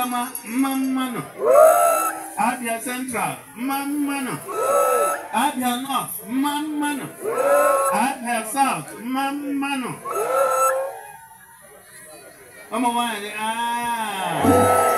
Adama Mammano, Abia Central Mammano, Abia North Mammano, Abia South Mammano. Ọmọ wa aaa.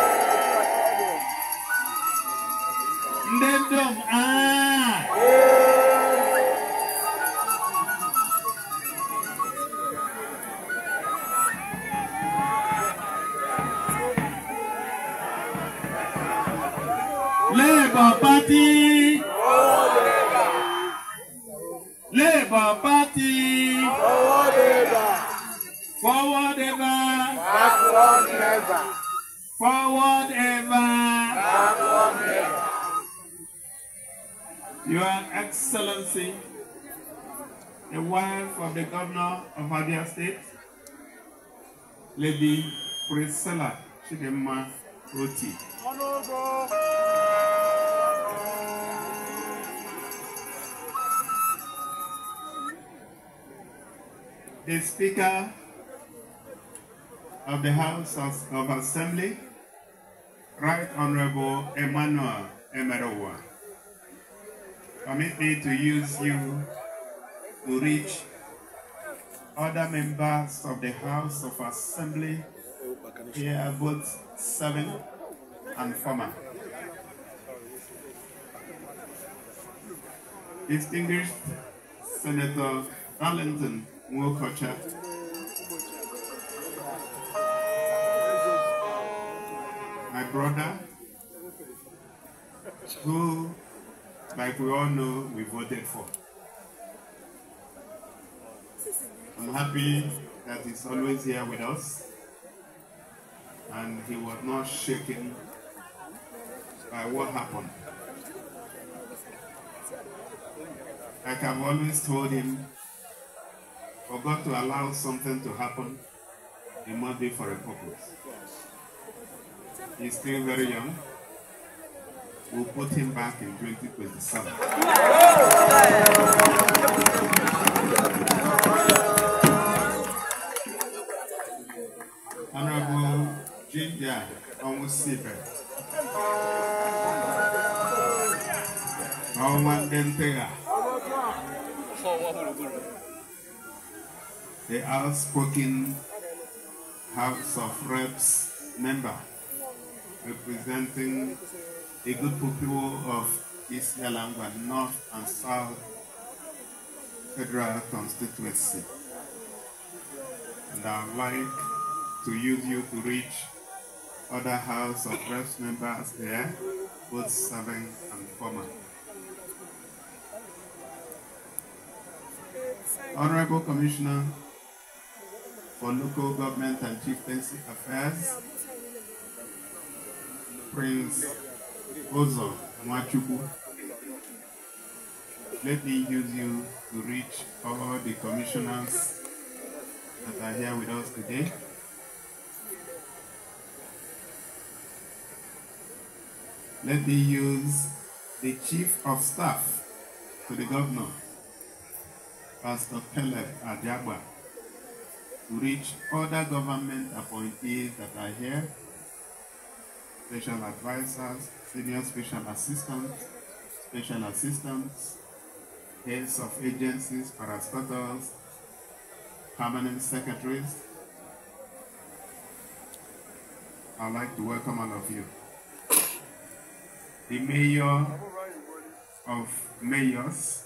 Lady Priscilla Chidema Roti. The Speaker of the House of, of Assembly, Right Honorable Emmanuel Emerowa. Permit me to use you to reach other members of the House of Assembly here, both serving and former. Distinguished Senator Arlington Mwokocha, my brother, who, like we all know, we voted for. I'm happy that he's always here with us and he was not shaken by what happened. Like I've always told him, for God to allow something to happen, it must be for a purpose. He's still very young. We'll put him back in 2027. usipe ọnwa ndị the outspoken House of Reps member representing a good people of East Yalamba North and South Federal Constituency. And I'd like to use you to reach other House of Reps members there, both serving and former. Honorable Commissioner for Local Government and Chieftaincy Affairs, Prince Ozo Mwachubu, let me use you to reach all the commissioners that are here with us today. Let me use the chief of staff to the governor, Pastor Caleb Adiagba, to reach other government appointees that are here, special advisors, senior special assistants, special assistants, heads of agencies, parastatals, permanent secretaries. I'd like to welcome all of you the mayor of mayors,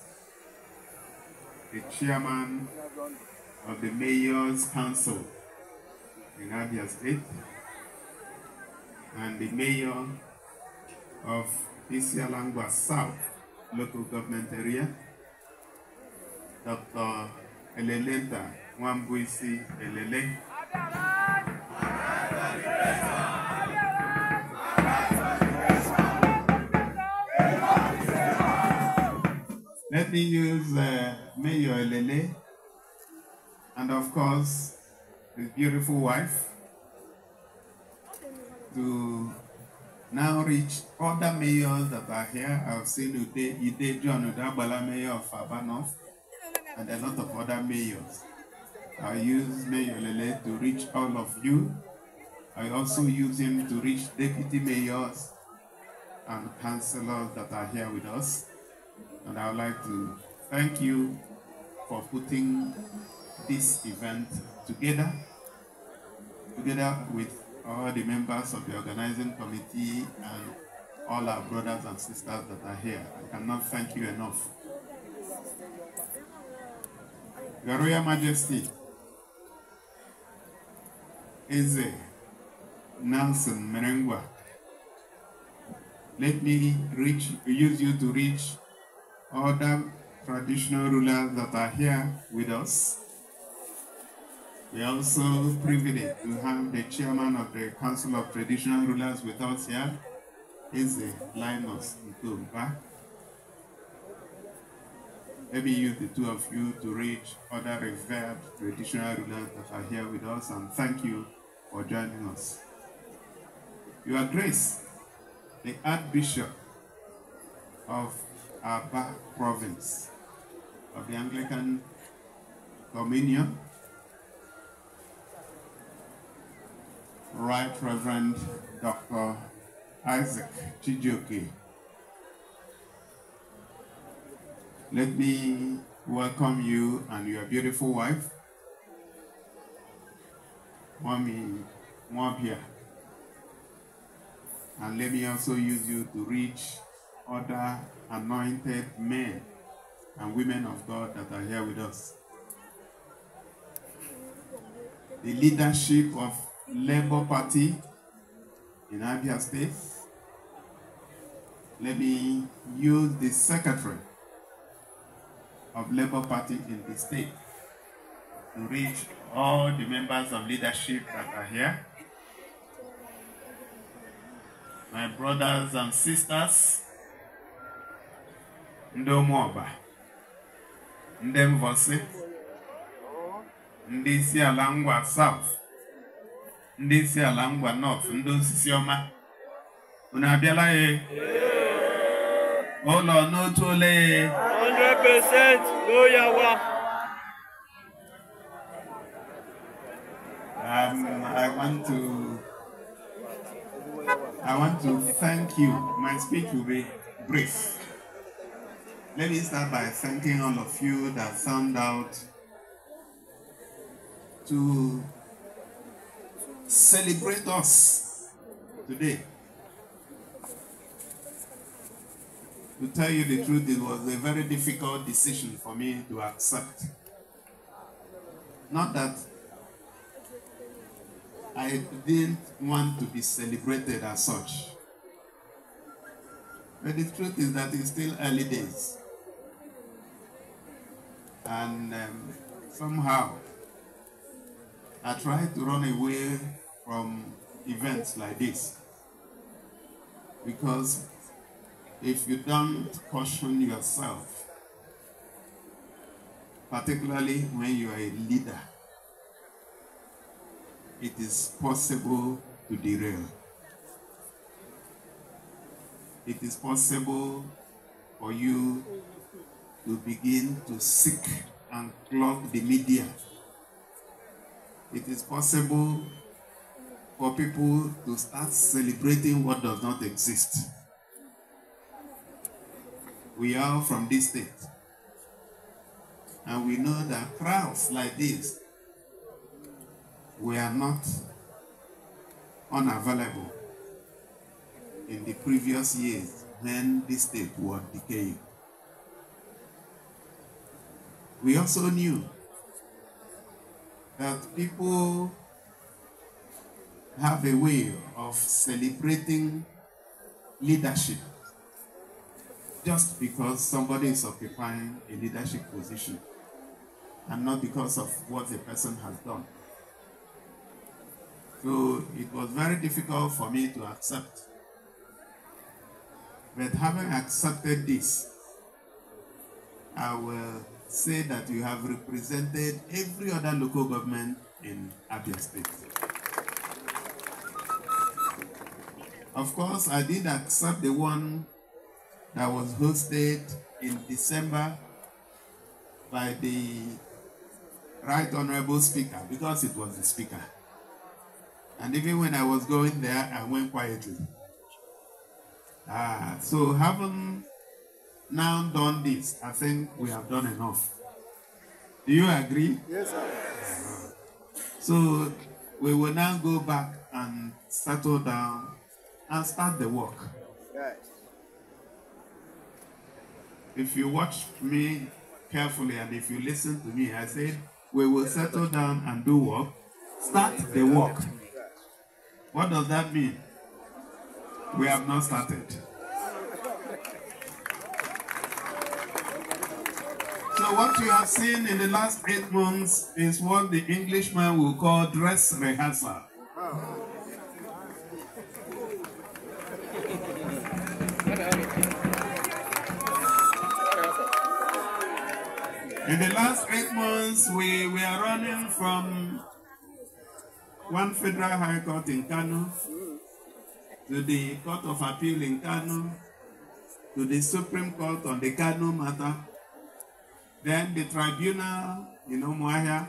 the chairman of the mayor's council in Abia State, and the mayor of Isialangwa South local government area, Dr. Elelenta Wambuisi Elele. Let me use uh, Mayo Elele and of course his beautiful wife to now reach other mayors that are here. I've seen Ude, Ude John Udabala, mayor of Abanov, and a lot of other mayors. I use Mayor Lele to reach all of you. I also use him to reach deputy mayors and councillors that are here with us. And I would like to thank you for putting this event together, together with all the members of the organizing committee and all our brothers and sisters that are here. I cannot thank you enough. Your Royal Majesty, Eze Nelson Merengwa, let me reach, use you to reach other traditional rulers that are here with us. We are also privileged to have the chairman of the Council of Traditional Rulers with us here, Eze Linus Ntumba. Maybe you, the two of you, to reach other revered traditional rulers that are here with us, and thank you for joining us. Your Grace, the Archbishop of Abba province of the Anglican Dominion, Right Reverend Dr. Isaac Chijoki. Let me welcome you and your beautiful wife, Mami Mwabia. And let me also use you to reach other anointed men and women of God that are here with us. The leadership of Labour Party in Abia State. Let me use the secretary of Labour Party in the state to reach all the members of leadership that are here. My brothers and sisters, ndị ụmụọba ndị mvọsị ndị isi ala ngwa south ndị isi ala ngwa north ndị osisi ọma unu abịala ya ụlọ n'otu ole 100% um, I want to I want to thank you. My speech will be brief. Let me start by thanking all of you that found out to celebrate us today. To tell you the truth, it was a very difficult decision for me to accept. Not that I didn't want to be celebrated as such. But the truth is that it's still early days and um, somehow I try to run away from events like this because if you don't caution yourself, particularly when you are a leader, it is possible to derail. It is possible for you to begin to seek and clog the media. It is possible for people to start celebrating what does not exist. We are from this state. And we know that crowds like this were not unavailable in the previous years when this state was decaying we also knew that people have a way of celebrating leadership just because somebody is occupying a leadership position and not because of what the person has done. So it was very difficult for me to accept. But having accepted this, I will say that you have represented every other local government in Abia State. Of course, I did accept the one that was hosted in December by the Right Honorable Speaker because it was the Speaker. And even when I was going there, I went quietly. Ah, so having now done this, I think we have done enough. Do you agree? Yes, sir. So we will now go back and settle down and start the work. Right. If you watch me carefully and if you listen to me, I said we will settle down and do work. Start the work. What does that mean? We have not started. So what you have seen in the last eight months is what the Englishman will call dress rehearsal. In the last eight months, we, we are running from one federal high court in Kano to the Court of Appeal in Kano to the Supreme Court on the Kano matter then the tribunal in Omuahia,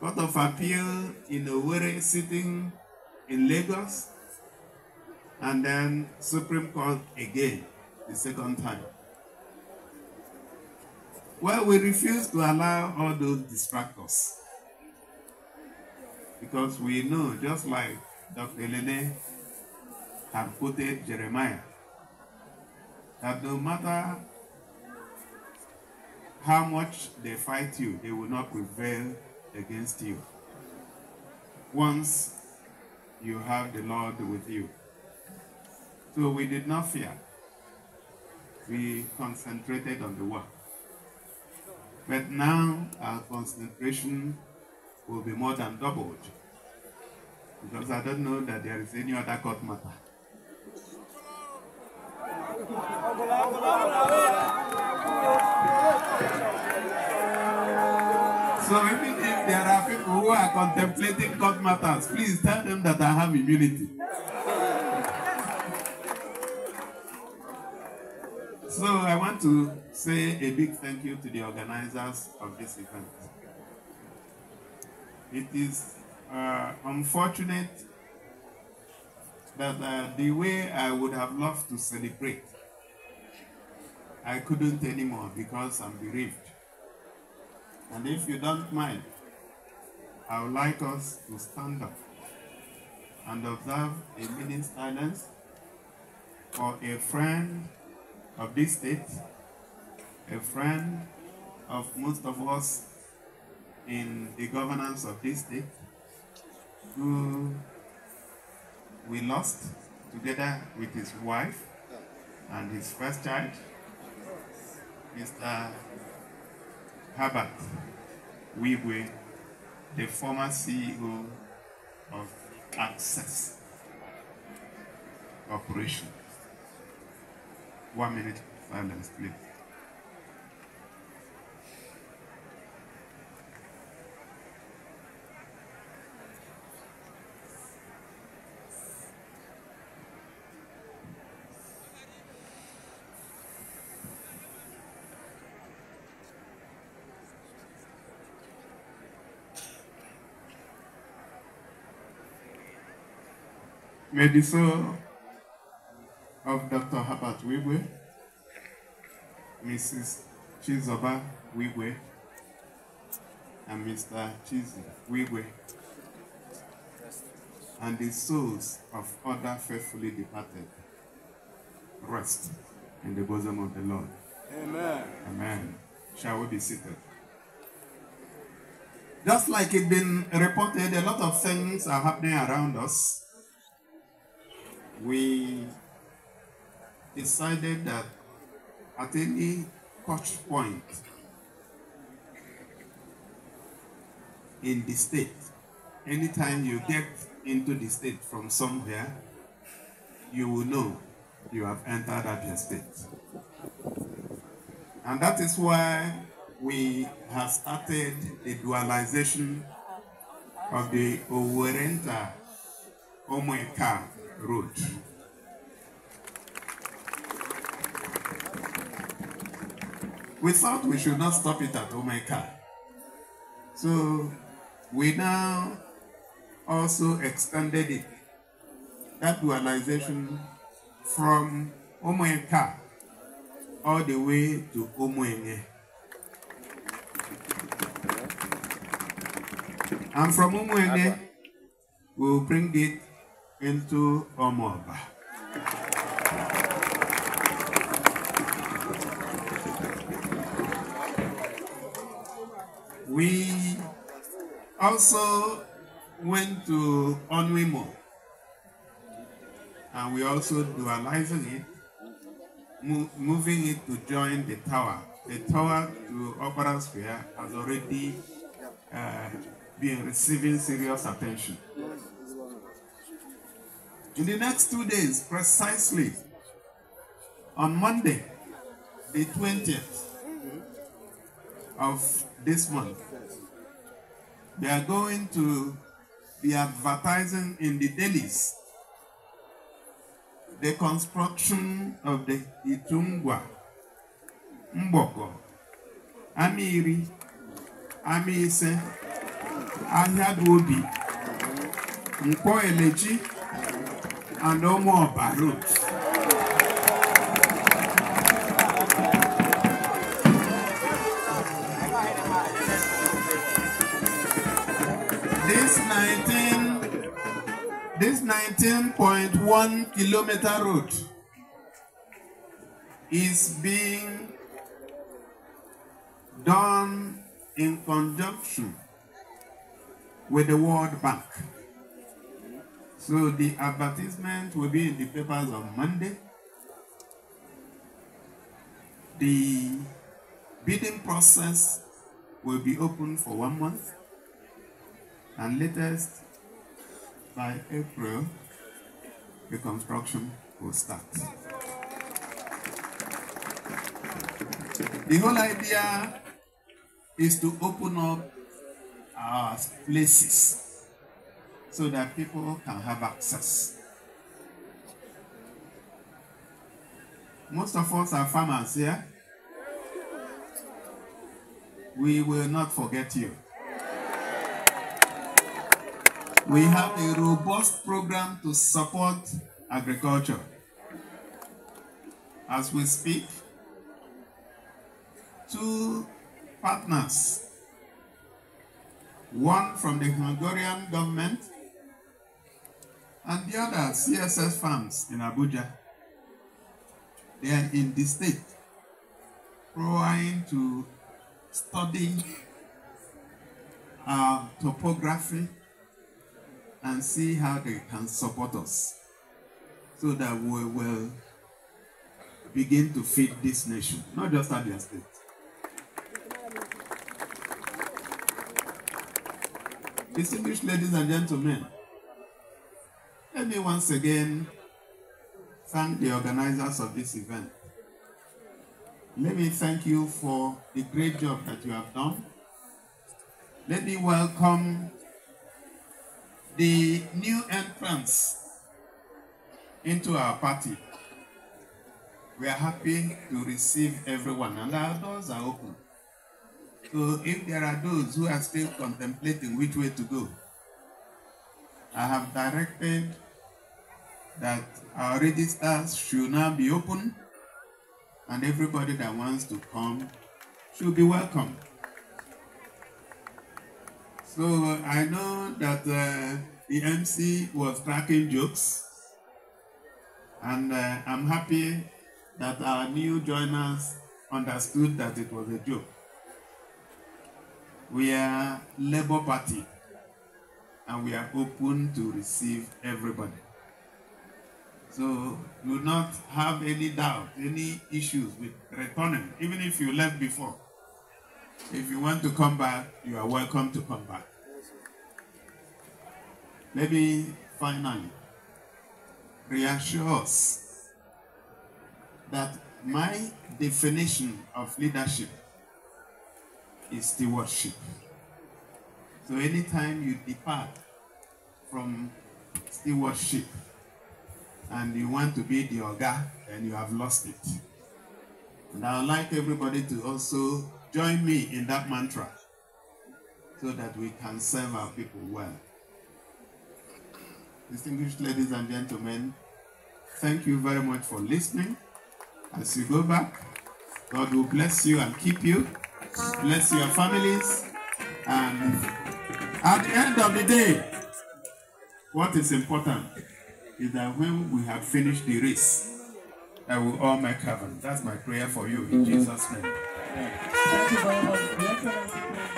Court of Appeal in Owerri sitting in Lagos, and then Supreme Court again, the second time. Well, we refuse to allow all those distractors because we know, just like Dr. Elene had quoted Jeremiah, that no matter how much they fight you, they will not prevail against you. Once you have the Lord with you. So we did not fear. We concentrated on the work. But now our concentration will be more than doubled. Because I don't know that there is any other court matter. So maybe if there are people who are contemplating court matters, please tell them that I have immunity. So I want to say a big thank you to the organizers of this event. It is uh, unfortunate that uh, the way I would have loved to celebrate, I couldn't anymore because I'm bereaved. And if you don't mind, I would like us to stand up and observe a minute's silence for a friend of this state, a friend of most of us in the governance of this state, who we lost together with his wife and his first child, Mr. Herbert Wigwe, the former CEO of Access Corporation. One minute silence, please. Maybe so of Dr. Herbert Wigwe, Mrs. Chizoba Wigwe, and Mr. Chizi Wigwe, and the souls of other faithfully departed rest in the bosom of the Lord. Amen. Amen. Shall we be seated? Just like it's been reported, a lot of things are happening around us we decided that at any touch point in the state, anytime you get into the state from somewhere, you will know you have entered Abia State. And that is why we have started the dualization of the Owerenta Omweka road. We thought we should not stop it at Omeka. So we now also extended it, that dualization from Omeka all the way to Omoenye. And from Omoenye, we'll bring it into Omoba. We also went to Onwimo and we also dualizing it, mo moving it to join the tower. The tower to Opera Square has already uh, been receiving serious attention. In the next two days, precisely, on Monday, the 20th of this month, we are going to be advertising in the dailies the construction of the Itungwa, Mboko, Amiri, Amise, Ahiaduobi, Mpo Eleji, and no more balloons. This 19, this 19.1 kilometer road is being done in conjunction with the World Bank. So the advertisement will be in the papers on Monday. The bidding process will be open for one month and latest by April the construction will start. The whole idea is to open up our places so that people can have access. Most of us are farmers here. We will not forget you. We have a robust program to support agriculture. As we speak, two partners, one from the Hungarian government and the other CSS farms in Abuja, they are in the state trying to study our um, topography and see how they can support us so that we will begin to feed this nation, not just Abuja State. Distinguished ladies and gentlemen, let me once again thank the organizers of this event. Let me thank you for the great job that you have done. Let me welcome the new entrants into our party. We are happy to receive everyone and our doors are open. So if there are those who are still contemplating which way to go, I have directed that our registers should now be open and everybody that wants to come should be welcome. So I know that uh, the MC was cracking jokes and uh, I'm happy that our new joiners understood that it was a joke. We are Labour Party and we are open to receive everybody. So you not have any doubt, any issues with returning, even if you left before. If you want to come back, you are welcome to come back. Maybe finally reassure us that my definition of leadership is stewardship. So anytime you depart from stewardship, and you want to be the Oga, and you have lost it. And I would like everybody to also join me in that mantra so that we can serve our people well. Distinguished ladies and gentlemen, thank you very much for listening. As you go back, God will bless you and keep you, bless your families, and at the end of the day, what is important is that when we have finished the race, I will all make heaven. That's my prayer for you in mm -hmm. Jesus'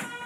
name.